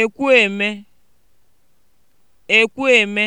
ekwueme ekwueme